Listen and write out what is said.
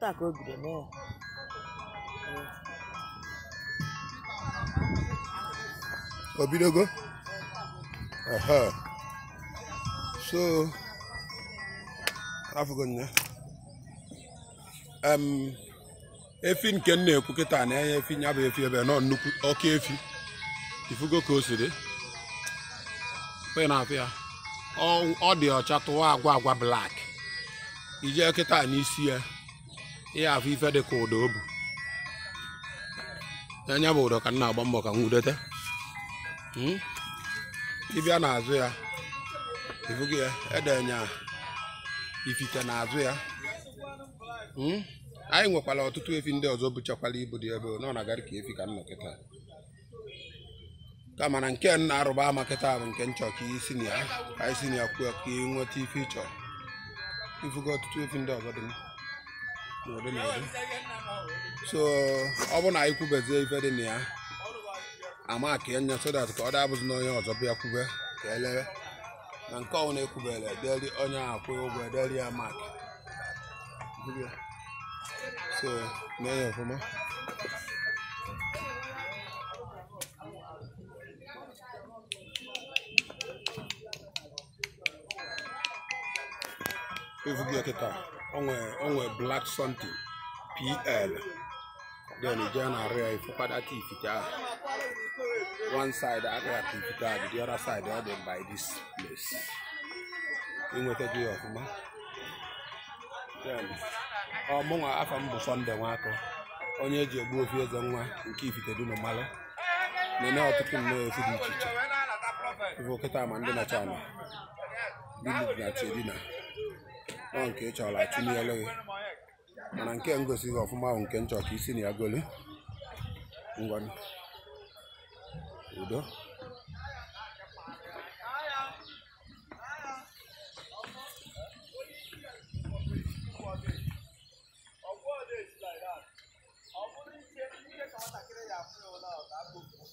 taa efi nke na-ekwu kịta na-enye efi nya bụ efi ebe nọ nnukwu oke efi ifugo ka o na ọ dị ọcha tụwa agwa agwa blak ijee kịta n'isi ya ihe afọ ife dị ka ụdọ o bu anya bụ ụdọ ka m na-agba mbọ ka m nwudote hmm? ịbịa n'azụ ya ịfụgo ya edenye ifite n'azụ ya hmm? anyị nwekwara ọtụtụ efi ndị ọzọ bụchakwara ibu dị ebe nọ na agarị ka efi ka m kịta ka mana nke na-arụba ama kịta bụ nke nchọ ka isi na ya ka isi na ya kwuo ka ị nweta ife ị chọrọ ọtụtụ efi ndị ọzọ dị m so ọ bụ na anyị kwubezie ife dị na ya ama ka enye so that ka ọ dabụzi n'onye ọzọ bịa kwube ka elere na nke ọnwụ na-ekwubere ederi onye ahụ akwụghị ụgwọ ederi ya mak so na ya ọfụma evugie kịta onwe black something pl then ije area arịa ifụkwadata ifite one side akpịata ifite the other side ọ dị by this place inwetago ya ọfụma ọmụnwa afọ m bụ sọnde nwaakọ onye eji egbu ofu eze nwa nke ifite dị normal. na-eme ọtụtụ nnọọ efu dị iche iche ife okịta ma na china bilid na chedina ọ nke ị chọrọ achụnyelu gị mana nke ngosi gị ọfụma ahụ nke nchọ isi na ya golu ngwanụ udo